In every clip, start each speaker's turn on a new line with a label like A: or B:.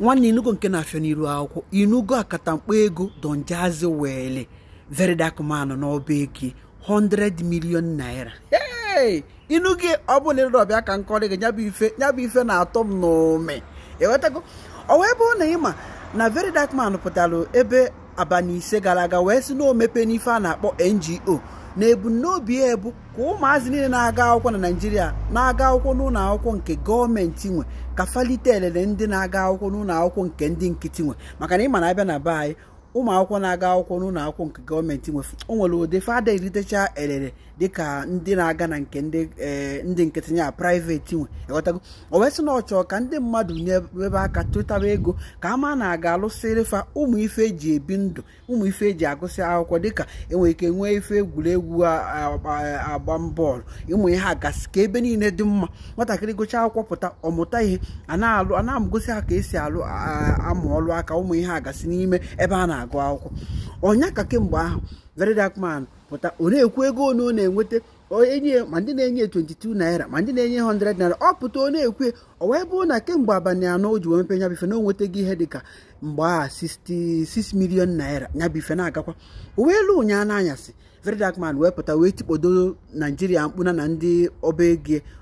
A: nwanne inugo nke na-afịa n'iru akwụkwọ inugo mkpa ego donjazi wele veridakmanụ n'ọba eke, 100 million naira inu gị ọ bụ na ọbịa ka nkọrị gị nyabụ ife nyabụ ife na-atọ m n'ome ewetago ọ wee bụrụ na ịma na veridakman pụtara ebe abalị ise gara aga wee si na n'ife a na-akpọ NGO na ebumnobi ya ebu ka ụmụazị niile na-aga akwụkwọ na naijiria na-aga akwụkwọ n'ụlọ akwụkwọ nke gọọmenti nwe ka falite elele ndị na-aga akwụkwọ n'ụlọ akwụkwọ nke ndị nkịtị nwe maka na ịma na abịa na be anyị ụmụ akwụkwọ na-aga akwụkwọ n'ụlọ akwụkwọ nke gọọmenti nwe o nwere ụdị fada eritecha elele dịka ndị na-aga na nke ndị eh, nkịtị ya praiveti nwe e ghọtago o wesị na ọchọ ka ndị mmadụ ebe aka tụtaba ego ka ama na-aga alụsịrị fa ụmụ ife eji ebi ndụ ụmụ ife eji agụsị akwụkwọ dịka enwere ike nwee ife egwuregwu agba bọọlụ ịmụ ihe agasị ka ebe niile dị mma nwatakịrị gụchaa akwụkwọ pụta ọmụta ihe a na-alụ a na-amụgosi ha ka esi alụ amụ ọlụ aka ụmụ ihe agasị n'ime ebe a na na-agụ akwụkwọ ọnya ka kemgbe ahụ very dark pụta ọ na-ekwu ego one ọ na-enweta ma ndị na-enye 22 naira ma ndị na-enye 100 naira ọ pụta ọ na-ekwe ọ wee bụ na kemgbe abalị anọ o ji wee mepe nyabife na o ihe dịka mgbe a 66 naira nyabife na-agakwa o wee lụ ụnyaa n'anyasị verydarkman wee pụta wee tikpodo naijiria mkpụna na ndị ọba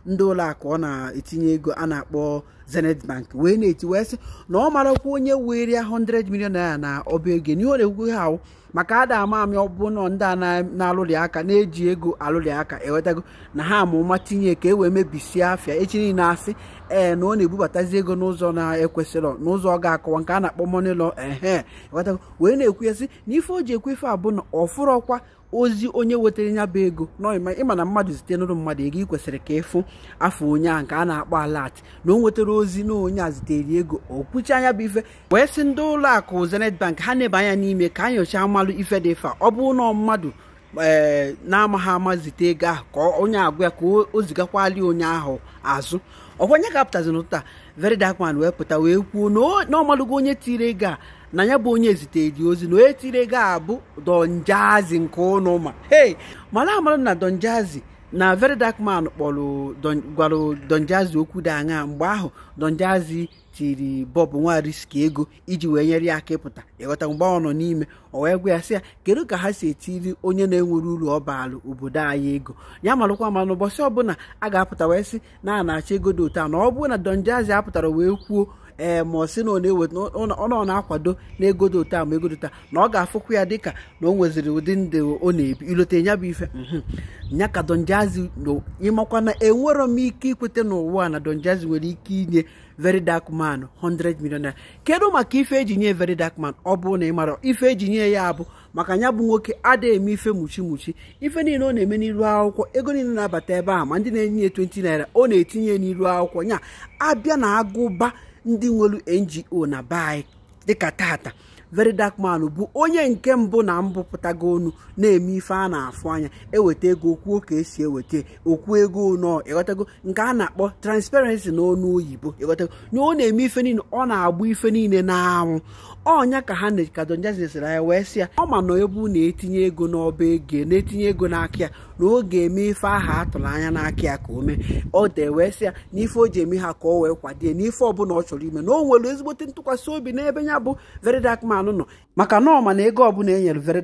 A: ndị ụlọ ọ na-etinye ego a na-akpọ zenith bank wee na-eti wee sị na ọ marakwa onye weria 100 million naira na ọba ego na-ekwukwe ha maka ada ama amị ọbụna ndị a na-alụrị aka na-eji ego alụrị aka ewetago na ha amụma tinye ka e wee mebisie afịa echi niile asị ee na ọ na-ebubatazi ego n'ụzọ na-ekwesịrọ n'ụzọ ọ ga-akọwa nke a na-akpọ money law ehe wee na-ekwu ya sị na ife o ji ekwefe abụ na ọ ozi Ozi onye wetara ya bụ ego ịma na mmadụ zite n'ụrụ mmadụ ego ị kwesịrị ka ịfụ afọ onye a nke a na-akpọ alat na o nwetara ozi na onye a zitere ego o kpuchi anya bụ ife wee sị ndị ụlọ akụ Zenith Bank ha na ebe anya n'ime ka a nyochaa mmalụ ife dị fa ọ bụ na mmadụ ee eh, na-amaghị ama zite ego ahụ ka onye agwa ya ka o zigakwali onye ahụ azụ ọkwa onye kapụtazi n'ụta Very Dark Man wee pụta wee kwuo na ọ malụgo onye tiri ego a na ya bụ onye ezite ozi na etire ga-abụ donjazi nke ụnụ ma hey mara amara na donjazi na very dark man kpọrọ gwara donjazi okwu dị aṅa mgbe ahụ donjazi tiri bọb nwariski ego iji wee nyere ya aka ịpụta ịghọta mgbe ọ nọ n'ime ọ wee gwa ya sị ya kedu ka ha si etiri onye na-enwere uru ọ baara obodo anyị ego ya marụkwa ma ụbọchị ọbụla a ga-apụta wee sị na a na-achọ ego dị otu a na ọ bụrụ na donjazi apụtara wee kwuo ee eh, ma ọ sị na ọ na-eweta ọ na-akwado na egodo taa ma egodo taa na ọ ga afụkwu ya dịka na o nweziri ụdị ndụ ọ na-ebi ilote ya bụ ife ya ka donjazi ịmakwa na enwero m ike ikweta n'ụwa na donjazi nwere ike inye very dark man 100 million kedu maka ife eji nye very dark man ọ bụ na ị mara ife eji nye ya abụ maka ya bụ nwoke adịghị eme ife mụchi mụchi ife niile ọ na-eme n'iru akwụkwọ ego niile na-abata ebe a ma ndị na-enye 20 naira ọ na-etinye n'iru akwụkwọ nya abịa na agụba ndị nwelu ngo na be anyị dịka tata very dark man bụ onye nke mbụ na mbụpụtago onu na-eme ife a na-afụ anya eweta ego kwuo ka esi eweta okwu ego nọ ịghọtago nke a na-akpọ transparency na onu oyibo ịghọtago nye ọ na-eme ife niile ọ na-agba ife niile n'anwụ ọnya ka ha kadonjazesịra anya wee sị ya ọ ma na ebe na-etinye ego n'ọba ego na-etinye ego n'aka ya na ọ ga-eme ife aha atụrụ anya n'aka ya ka o mee ọ da wee ya na ife o ji eme ha ka ọ wee kwadie n'ife ọbụla ọ chọrọ ime na o nwere ezigbote ntụkwasị obi n'ebe ya bụ very nọ maka na ọma na ego ọbụla e nyere very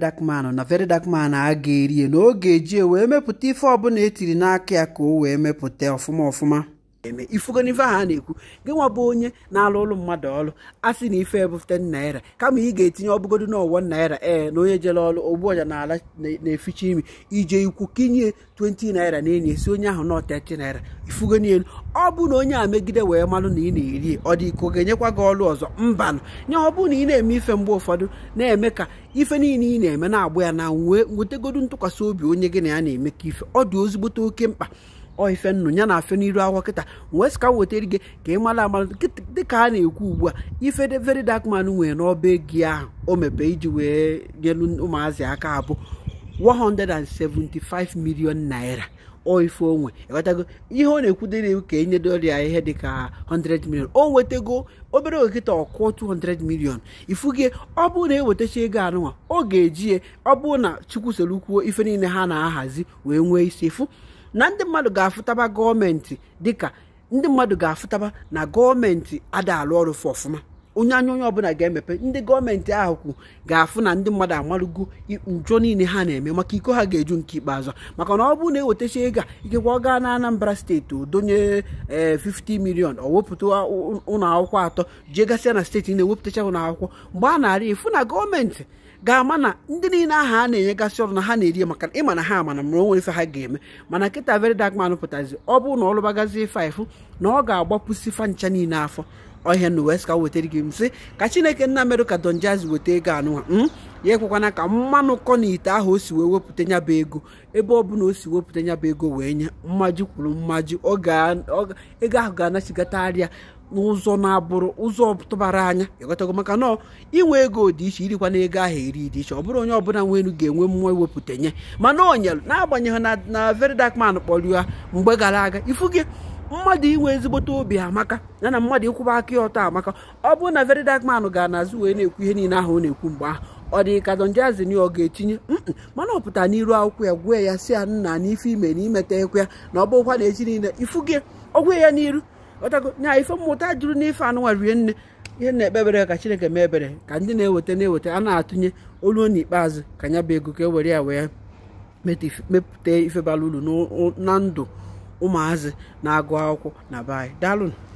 A: na very dark a ga-erie na oge eji e wee mepụta ife ọbụla e tiri n'aka ya ka o wee mepụta ọfụma ọfụma eme ifugo n'ife ahụ a na-ekwu gị nwa bụ onye na-alụ ụlọ mmadụ ọrụ a sị na ife ebufte naira kama ị ga-etinye ọbụgodu n'ọwọ naira ee na onye jere ọrụ ogbuọja n'ala na-eficha imi ije ikwu kinye 20 naira na enyi esi onye ahụ na 30 naira ifugo n'elu ọ bụ na onye a megide wee malụ na ị na-eri ọ dị iko ga-enyekwa gị ọrụ ọzọ mbanụ nya ọ bụ na ị na-eme ife mgbe ụfọdụ na-eme ka ife niile ị na-eme na-agba ya na wee nwetegodu ntụkwasị obi onye gị na ya na-eme ka ife ọ dị ozigbote oke mkpa ife nnụ ya na afe n'iru akwụkwọ kịta wee sika wetara gị ka ị mara amara dịka a na-ekwu ugbu a ife very dark man nwere n'ọba egi ahụ o mepe iji wee nyelu ụmụazị aka abụ 175 million naira ife onwe ewetago ihe ọ na-ekwudere ka enye doria ihe dịka 100 million o nwetago obere okịta ọkụ 200 million gị ọ bụrụ na ewetacha ego anụnwa ọ ga-eji ọ bụrụ na chukwu soro kwuo ife niile ha na-ahazi wee nwee isi fụ na ndị mmadụ ga-afụtaba gọọmenti dịka ndị mmadụ ga-afụtaba na gọọmenti adaalụ ọrụ fụ ọfụma onye anya onye ọbụla ga-emepe ndị gọọmenti ahụ kwu ga-afụ na ndị mmadụ amalụgo njọ niile ha na-eme maka iko ha ga-eju nke ikpeazụ maka na ọ bụrụ na ewetacha ego a ikekwa ọ gaa na Anambra steeti donye 50 eh, million ọ wepụta ụlọ akwụkwọ atọ jee gasịa na steeti na-ewepụtacha ụlọ akwụkwọ mgbe a na-arị efu na gọọmenti ga-ama na ndị niile aha a na-enyegasị ọrụ na ha na-eri maka ịma na ha amana mara onwere ife ha ga-eme mana nkịta very dark man pụtazi ọ bụrụ na ọ lụbagazie faifụ na ọ ga-agbapụsi fa ncha niile afọ ọhịa na west ka wetara gị msị ka chineke nna merụ ka don weta ego anụwa hmm? ya ekwekwana ka mmanụ kọ na ite ahụ o si wee wepụta nya bụ ego ebe ọ bụla o si wepụta nya bụ ego wee nye mmaji kwuru mmaji ego ahụ ga-anachigata arịa n'ụzọ na-abụrụ ụzọ tụbara anya ịghọtago maka nọ inwe ego dị iche irikwa na ego ahụ eri dị iche ọ bụrụ onye ọbụla nwe elu ga-enwe mmụọ iwepụta nye mana onyelu na-agbanyeghị na na very dark man kpọrọ ya mgbe gara aga ifu gị mmadụ inwe ezigbote obi amaka ya na mmadụ ịkwụba aka ya ọtọ amaka ọ bụrụ na very dark man gara n'azụ wee na-ekwu ihe niile ahụ ọ na-ekwu mgbe ahụ ọ dị ka Don ọ ga-etinye mana ọ pụtara n'iru akwụkwọ ya gwee ya si ya nna n'ife ime na imeta ekwe ya na ọ bụrụkwa na echi niile ifuge ọ ya n'iru ọtago nya ife mmụta juru n'ife anụnwa rie nne ihe na-ekpebere ka chineke mee ebere ka ndị na-eweta na-eweta a na-atụnye olu n'ikpeazụ ka ya bụ ego ka e were ya wee mepụta ife bara uru na ndụ ụmụazị na-agụ akwụkwọ na be